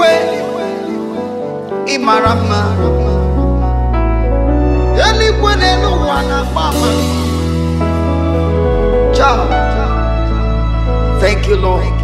iwe ịmara mma eluigwe n'elu ụwa Thank you, Lord.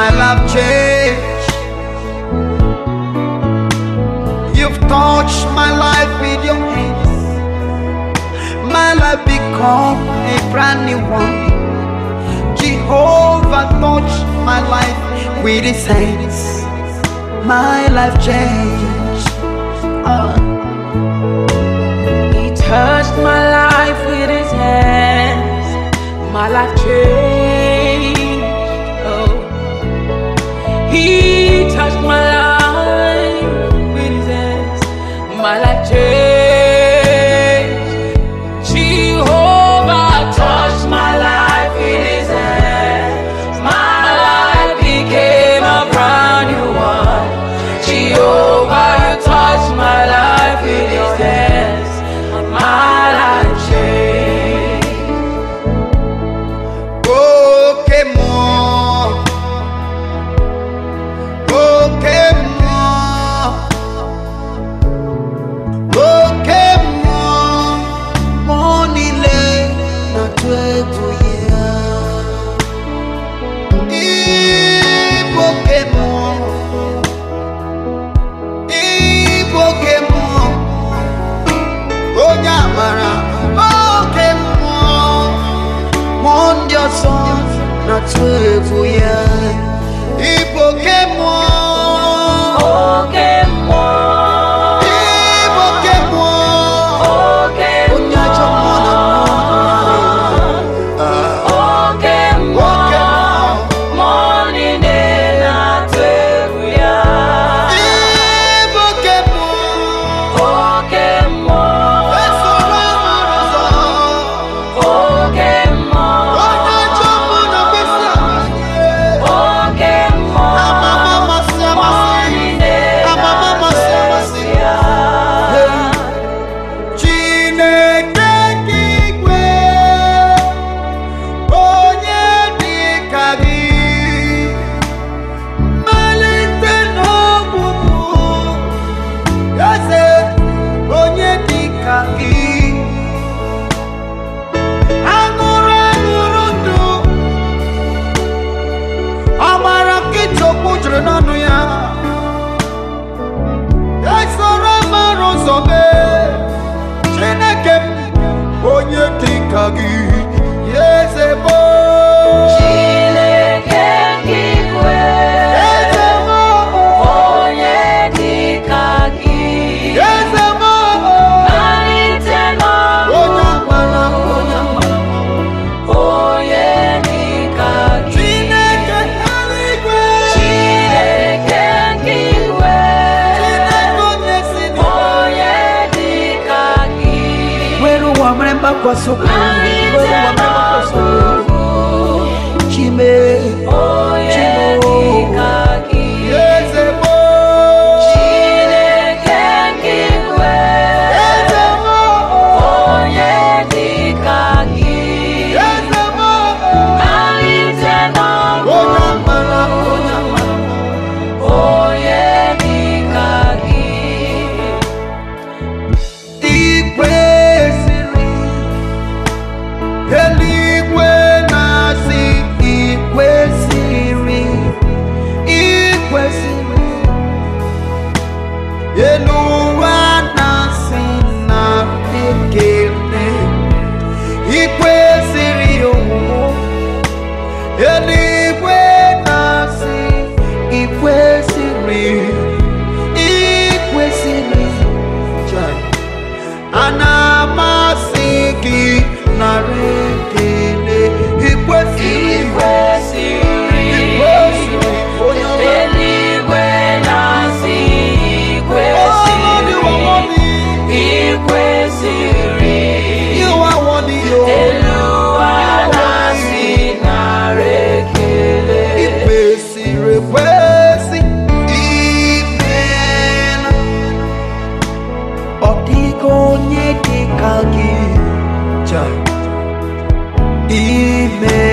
my life change. You've touched my life with your hands. My life become a brand new one. Jehovah touched my life with his hands. My life changed. Uh. He touched my life with his hands. My life changed. He touched my life. 自苦。so proud. made.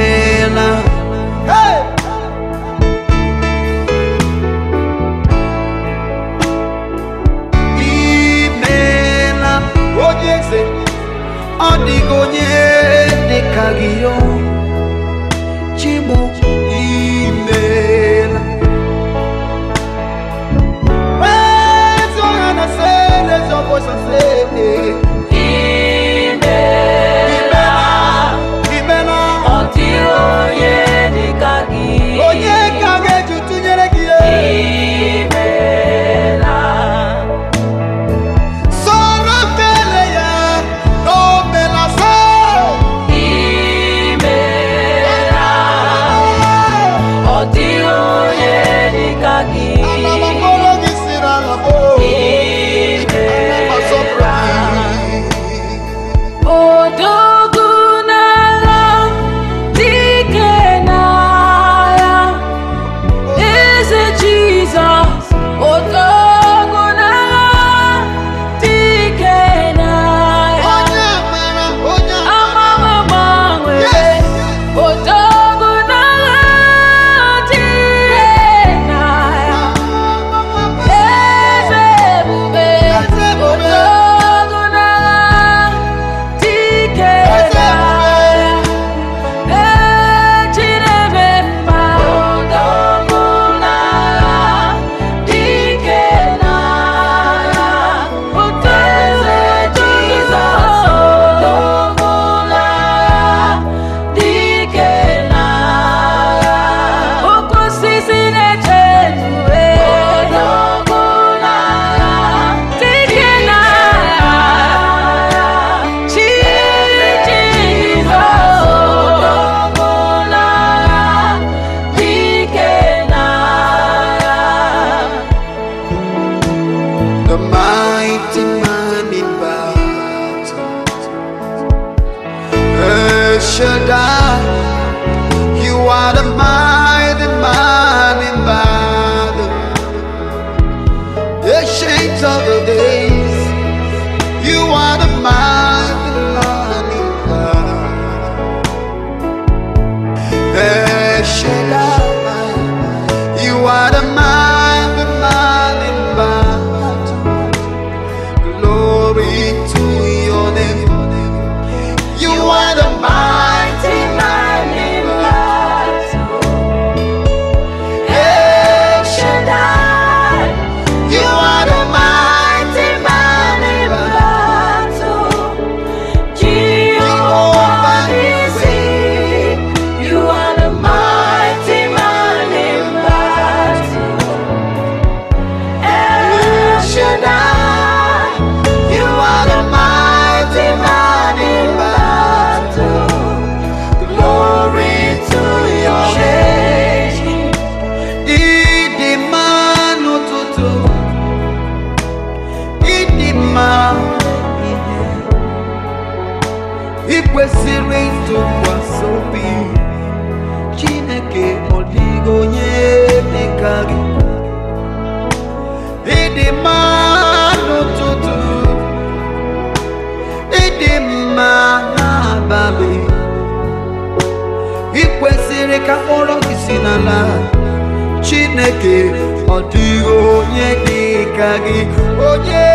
change of the days. You are the mind. ọ dịghị onye dị ka gị onye